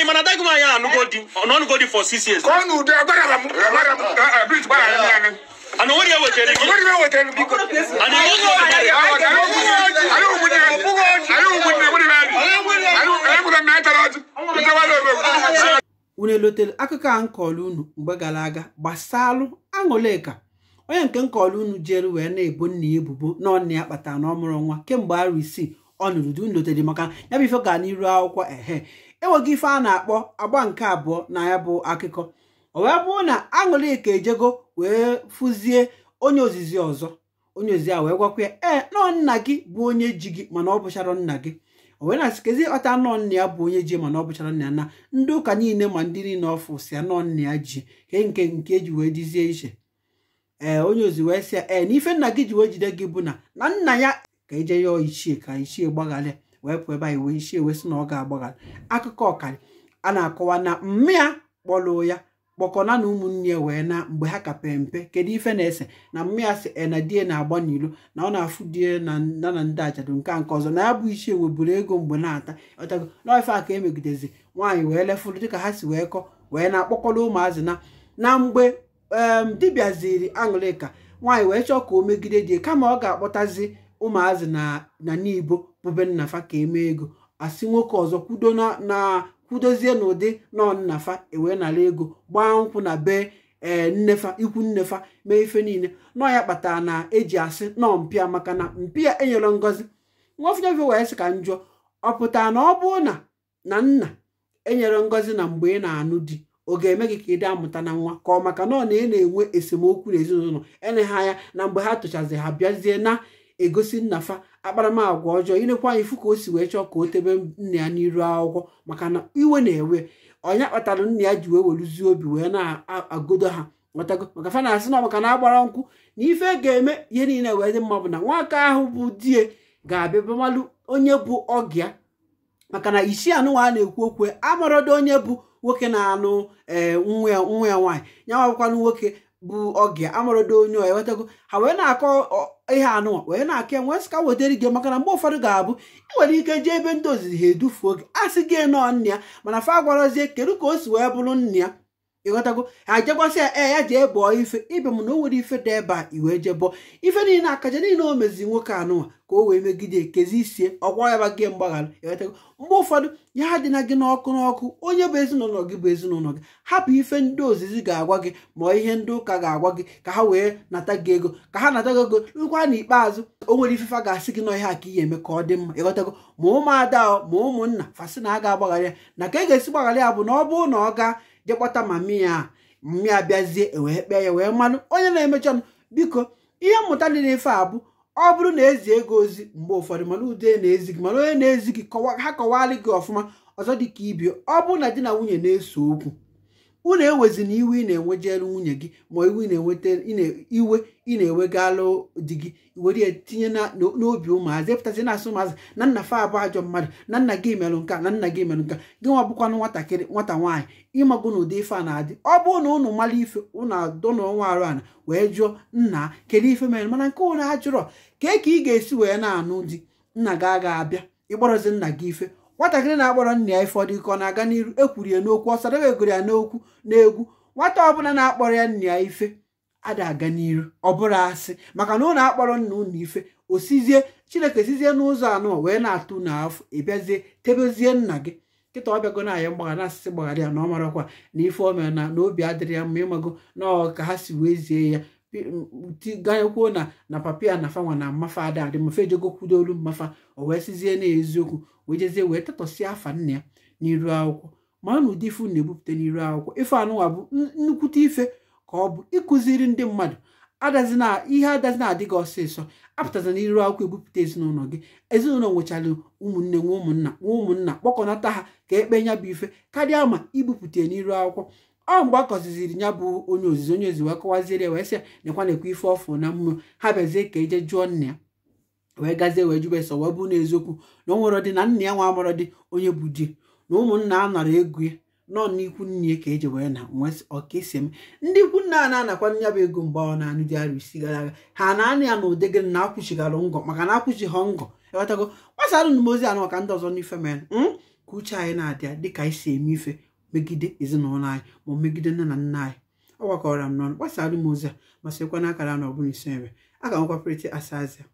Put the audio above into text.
imanata kuma yala nugodi nugodi for six years. kɔnu de agbada la mu unu elotele akụkọ a m kọrọ unu mgbe gara aga gbasalụ aṅụleka onye nke m kọrọ unu jere wee na-ebo nna ya ebubo na ọ ya kpatara na ọmụrụ nwa kemgbe arụ isii ọ nụrụ di notere maka ya bụ ife gaa n'iru akwụkwọ ehe enweghị ife a na-akpọ agba nke abụọ na ya bụ akụkọ ọ wee bụrụ na aṅụlịka ejego wee fụzie onye ozizi ọzọ onye ozizi a wee gwakwa ya ee nọ nna gị bụ onye ji gị mana ọ bụchara nna gị o wee na-asịkezi ọta nọọ nna ya bụ onye ji mana ọ bụchara nna ya na ndị ụka niile ma ndị niile ọfụ ya nọọ nna ya ji nke nke eji wee dizie iche ee eh, onye ozi wee sị ya ee eh, n'ife ife nna gị ji wee jide gị bụ na na nna ya ka ije e ya ichie ka ichie gbagharịa wee pụọ ebe anyị wee ichie wee sị na ọ ga-agbagharị akụkọ ọkara a na-akọwa na mmịa kpọlụ ya kpọkọna na ụmụnne ya wee na mgbe ha kape mpe kedu ife na-ese na mmịa sị si eh, ena die na-agba n'ilo na ọ na-afụ die na nda na ndị ajadu nke a nke ọzọ na ya bụ ichie buru ego mgbe na-ata ọtago n'ife a ka emegidezi nwaanyị wee lefụrụ dịka ha si wee kọ wee na-akpọkọrọ ụmụazị na na mgbe dibịa ziri aṅụlịka nwaanyị wee chọọ ka o megide di kama ọ ga-akpọtazi ụmụazị na n'ibo bụbe nnafa ka eme ego asị nwoke ọzọ kwudo na kwudozie n'ụdị nọ nnafa ewee nara ego gbaa nkwụ na bee ee nnefa ikwu nnefa mee ife niile nọ ya kpatara na eji asị nọọ mpịa maka na mpịa enyere ngọzi nwafinyefe wee sị ka njọ ọ pụtara na ọ bụrụ na na nna enyere ngọzi na mgbe ị na-anụ di ọ ga-eme gị ka ị dị amụta na nwa ka ọ maka na ọ na ị na-enwe esemokwu ezinụlọ eleghị anya na mgbe ha tụchazi ha bịazie na egosi nnafa akparamagwa ọjọọ ịnekwa anyị ifu ka o si wee chọọ ka o tebe nna ya n'iru akwụkwọ maka na iwe na-ewe ọnya kpatara nna ya ji wee weluzie obi wee na-agodo ha nwetago maka fa na-asị na maka na agbara nkwụ na ife ga-eme ihe niile wee dị mma bụ na nwaka ahụ bụ die ga-abịa bamalụ onye bụ ọgịa maka na isi ana a na-ekwu okwu amarodo onye bụ nwoke na-anụ ee nwa ya nwaanyị ya nwabụkwanụ nwoke bụ oge amarodo onye ọ ewetago ha wee na-akọ ihe anụnwa wee na-akọ enwe sịka wetara gị maka na mgbe ụfọdụ ga-abụ ị nwere ike jee ebe ndị ozizi ha edufuo gị a sị gị nọọ nna ya mana fa gwarazie kedu ka o si wee bụrụ nna ya ịghọtago ha jekwasị ya ee ya jee bụọ ife ibe m na o nwere ife dị ebe a iwee jee ife niile akaja niile o mezi nwoke anụnwa ka o wee megide kezie isie ọgwa ya gị mgbaghara ịghọtago mgbe ụfọdụ ya ha dịna gị n'ọkụ n'ọkụ onye bụ ezinụlọ gị bụ ezinụlọ gị hapụ ife ndị ozizi ga-agwa gị ma ihe ndị ụka ga-agwa gị ka ha wee nata gị ego ka ha nata gị ego rụkwa n'ikpeazụ o nwere ifefe ga-asị gị nọ ihe a ka ihe eme ka ọ dị mma ịghọtago ma ụmụada ma ụmụnna fasị na a ga-agbaghara ya na ka e ga-esi gbaghara ya bụ na ọ bụrụ na ọ gaa je ma mia mia bịazie e wee kpee ya wee mmanụ onye na-emecha m biko ihe mmụta dị n'ife a bụ ọ bụrụ na ezi ego ozi mgbe ụfọdụ mana ude na-ezi gị mana onye na-ezi gị ha kọwalị gị ọfụma ọzọ dịka ibi ọ bụrụ na di na nwunye na-ese okwu unu ewezina iwe ị na jelu nwunye gị ma iwe iwe ị na-ewegalụ di gị were tinye n'obi ụmụazị epụtazi na-asụ ụmụazị na nna fa abụ ajọ mmadụ na nna gị merụ nka na nna gị merụ nka gị nwa bụkwanụ nwatakịrị nwata nwaanyị ịmagụ na ụdị ife a na-adị ọ bụ na unu mara ife unu na ọnwa arụ ana wee jụọ nna kedu ife mere mana nke ụnụ ajụrọ ka ka ị ga-esi wee na-anụ di nna gị agaghị abịa ịgbọrọzi nna gị ife nwatakịrị na-akpọrọ nna ya ike ọ na-aga n'iru ekwuru ya n'okwu ọ sadebe egoro ya n'okwu n'egwu nwata ọbụla na-akpọrọ ya nna ya ife ada aga n'iru ọ bụrụ asị maka na ụlọ akpọrọ nna ụnụ ife osizie chineke sizie n'ụzọ anọ wee na-atụ n'afọ ịbịazie tebezie nna gị nkịta ọbịago na aya mgbaghara asịsị gbaghara ya na ọ marakwa na ife ọmịa na obi adịrị ya mma ịmago na ọ ka ha si wee zie ya kwuo na na papi a na fanwa na mmafa ada adị mafa ejegokwudo olu mmafa o wee sizie na eziokwu wee jezie wee tetọsịa afa nna ya n'iru akwụkwọ ma na ụdị ifu na-ebupụta n'iru akwụkwọ ife anụwa bụ nnukwute ife ka ọ bụ ịkụziri ndị mmadụ adazina ihe adazi na adịghị ọsịsọ apụtaza na iru akwụkwọ ebupụta ezinụlọ gị ezinụlọ nwechara ụmụnne nwa ụmụnna nwa ụmụnna kpọkọnata ha ka ekpe nya bụ ife karịa ma ibupụta n'iru akwụkwọ ọ mgbe akọziziri ya bụ onye ozizi onye ozi wee kọwaziere wee sị nekwa nekwa ife ọfụ na mmụọ ha bịazie ka eje jụọ nna ya wee gazie wee jube sọ wee bụ n'eziokwu na o nwere dị na nna ya nwa amụrụ dị onye bụ di na ụmụnna a nara ego ya nọọ n'ikwu nne ya ka eji wee na nwee ọkaisi eme ndị ikwu nna a na-anakwa nya bụ ego mgbe ọ na-anụ dị arụ isi gara aga ha na anị ya na ụdegị na akwụchighara ngọ maka na akwụchighị ngọ ewetago gbasara nụmozi anụ maka ndị ọzọ n'ife mere hmm? ka uche anyị na-adịa dịka anyị si eme ife megide ezinụlọ anyị ma megide nne na nna anyị ọ gwakọrọ m n'ọnụ gbasara m ozi a ma sịkwa n'akara na ọbụla isi nre a ga-anwekwa prịtị asa azịa